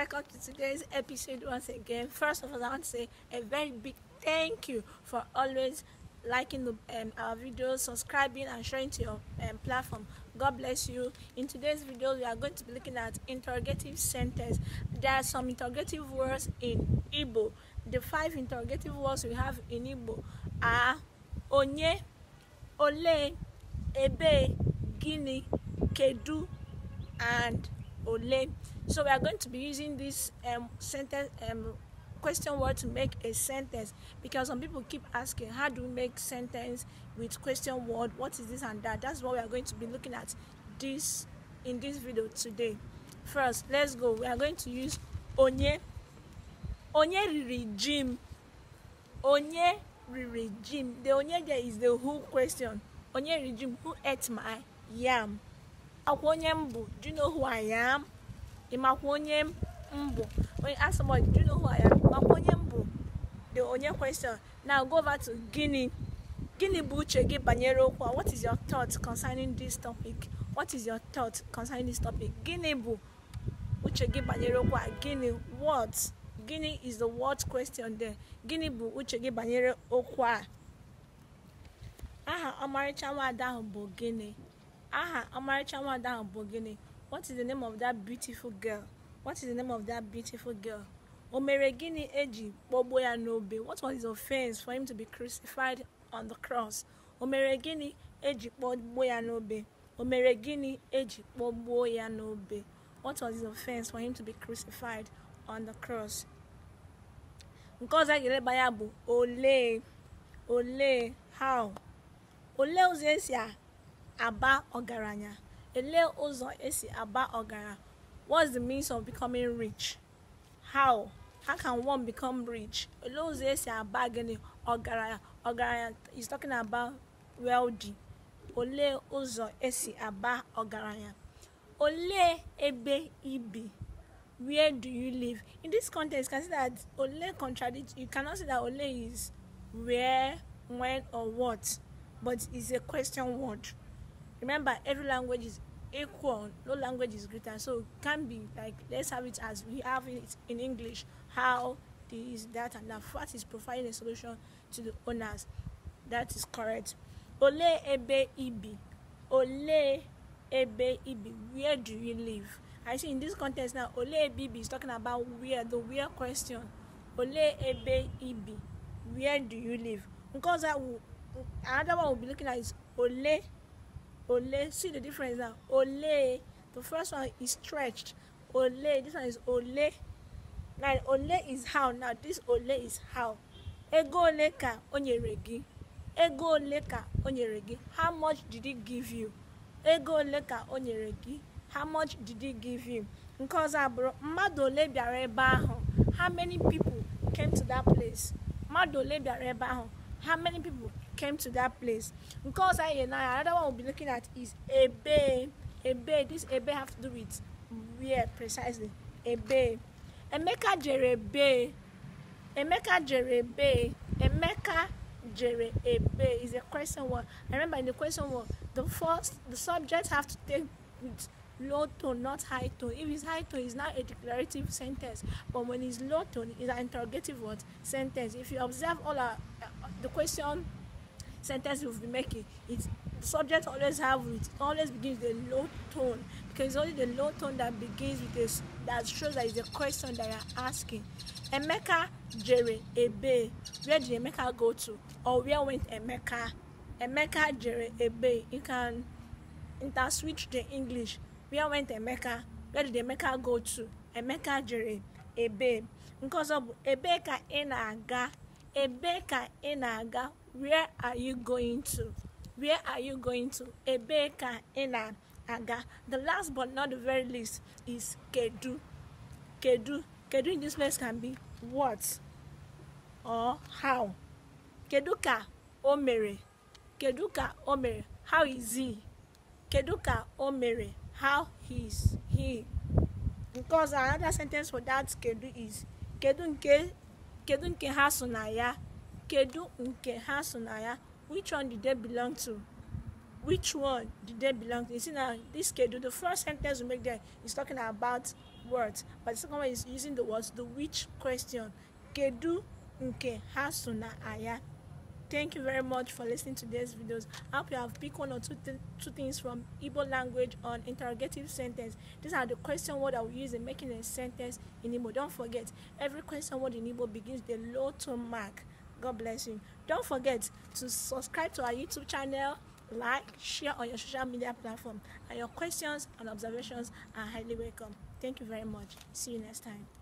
welcome to today's episode once again. First of all, I want to say a very big thank you for always liking the, um, our videos, subscribing, and sharing to your um, platform. God bless you. In today's video, we are going to be looking at interrogative sentences. There are some interrogative words in Igbo. The five interrogative words we have in Igbo are onye, ole, ebe, gini, kedu, and ole. So we are going to be using this um, sentence um, question word to make a sentence because some people keep asking how do we make sentence with question word what is this and that that's what we are going to be looking at this in this video today first let's go we are going to use onye onye regime, onye regime. the onye there is the who question onye regime, who ate my yam akwa onye m bụ do you know who I am ịmakwa onye m bụ onye ask somebody do you know who I am makwa onye m bụ the onye question na go over to gini bụ uche gị banyere okwu a what is your thought concerning this topic what is your thought concerning this topic bụ uche gị banyere okwu a gini what gini is the what question there gini bụ uche gị banyere okwu a aha ọmarịcha nwaada ahụ bụ gini. aha Ọmarịcha nwada ahụ bụ gịnị what is the name of that beautiful girl what is the name of that beautiful girl o mere gịnị eji kpọgbuo ya n'obe what was his offense for him to be crucified on the cross o mere gịnị eji kpọgbuo ya n'obe o mere gịnị eji kpọgbuo ya n'obe what was his offense for him to be crucified on the cross nke ọzọ a ga-eleba ya bụ olee olee how olee ụzọ esi a aba ọgaranya ele ụzọ esi aba ọgaranya what's the means of becoming rich how how can one become rich ele ụzọ esi aba gịnị ọgaranya ọgaranya is talking about wealthy ole ụzọ esi aba ọgaranya ole ebe ibi where do you live in this context you can see that ole contradict you cannot say that ole is where when or what but it's a question word remember every language is equal no language is greater so it can be like let's have it as we have it in english how this that and that fat is providing a solution to the owners that is correct ole ebe ibi ole ebe ibi where do you live i see in this context now ole ebe ibi is talking about where the where question ole ebe ibi where do you live because another one we'll be looking at is ole ole. See the difference now. Ole. The first one is stretched. Ole. This one is ole. Now ole is how. Now this ole is how. Ego oleka onyeregi. Ego oleka onyeregi. How much did he give you? Ego oleka onyeregi. How much did he give you? Nke ọzọ abụrụ mmadụ ole bịara ebe ahụ. How many people came to that place? Mmadụ ole bịara ebe ahụ. How many people came to that place. Because I and I, another one we'll be looking at is a bay. This a have to do with where precisely. A bay. Emeka jere bay. Emeka jere bay. Emeka jere is a question one. I remember in the question one, the first the subject have to take with low tone, not high tone. If it's high tone, it's not a declarative sentence. But when it's low tone, it's an interrogative word sentence. If you observe all our, uh, the question sentence you've been making It subject always have it always begins with a low tone because it's only the low tone that begins with a that shows that it's a question that you're asking emeka jere ebe where did emeka go to or where went emeka emeka jere ebe you can inter switch the english where went emeka where did emeka go to emeka jere ebe nke ọzọ bụ ebe ka ị na-aga ebe ka ị na-aga where are you going to where are you going to ebee ka ị na-aga the last but not the very least is kedu kedu kedu in this place can be what or how kedu ka o mere kedu ka o mere how is he kedu ka o mere how is he because another sentence for that kedu is kedu nke kedu nke ha so na ya kedu nke ha so na ya which one did they belong to which one did they belong to you see now this kedu the first sentence we make there is talking about words but the second one is using the words the which question kedu nke ha so na ya thank you very much for listening to these videos i hope you have picked one or two, th two things from Igbo language on interrogative sentence these are the question word i will use in making a sentence in Igbo don't forget every question word in Igbo begins with a low tone mark God bless you. Don't forget to subscribe to our YouTube channel, like, share on your social media platform, and your questions and observations are highly welcome. Thank you very much. See you next time.